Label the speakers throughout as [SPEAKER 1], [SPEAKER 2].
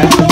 [SPEAKER 1] Thank you.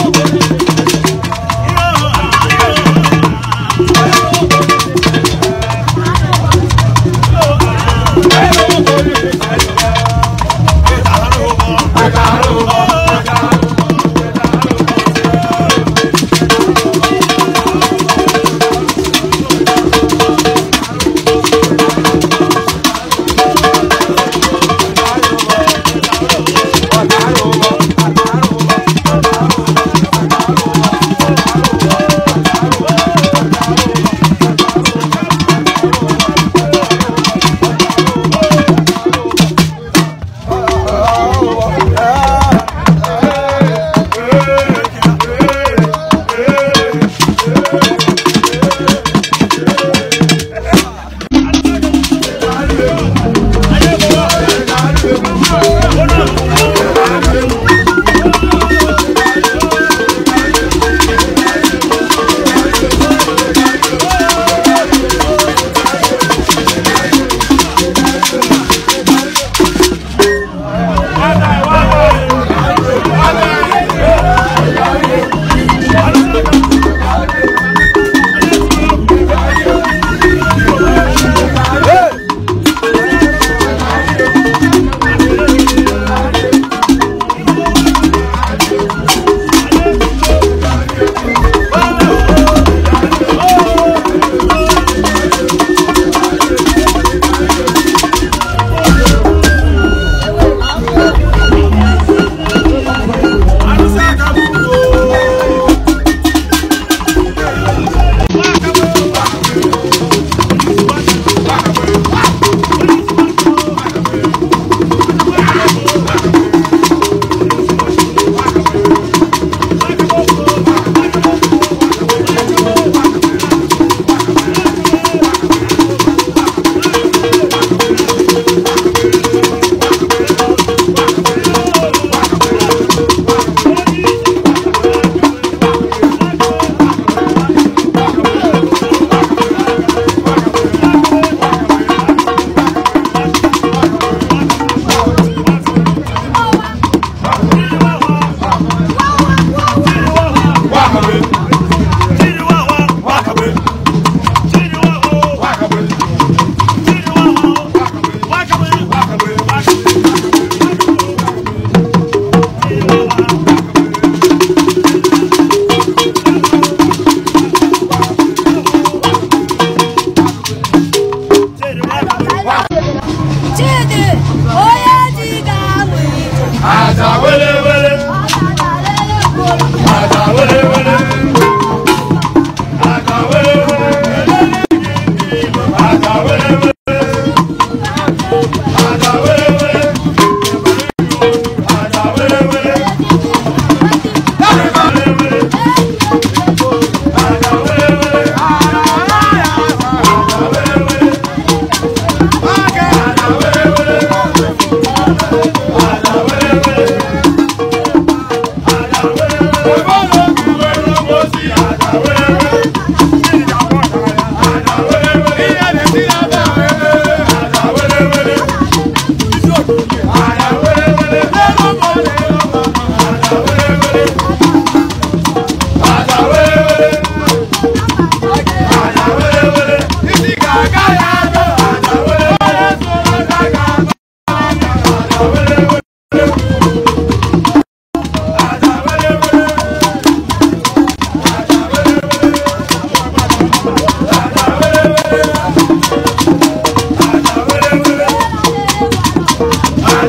[SPEAKER 2] power.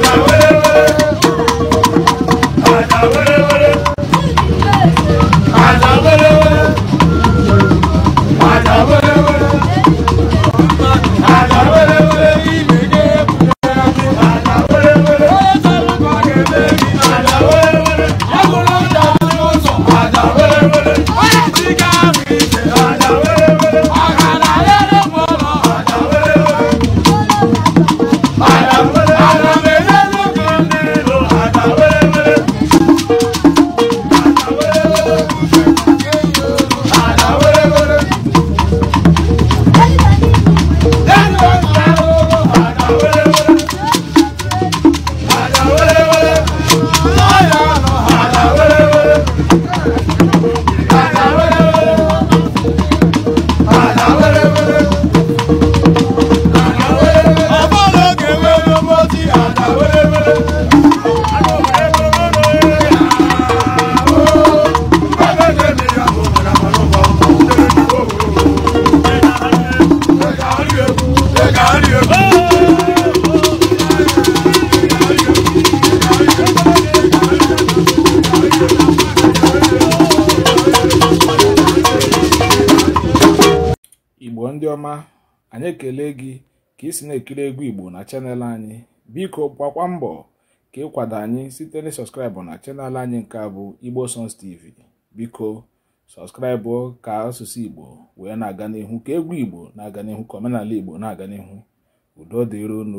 [SPEAKER 3] my way.
[SPEAKER 4] Thank you. ndị ọma anyị ekele gị ka ị si na-ekiri egwu igbo na chanel anyị biko gbakwa mbọ ka ịkwado anyị site na sọskraịbụ na chanel anyị nke bụ igbo songs tv biko sọskraịbụ ka asụsụ igbo wee na-aga n'ihu ka egwu igbo na-aga n'ihu ka omenala igbo na-aga n'ihu udo dịron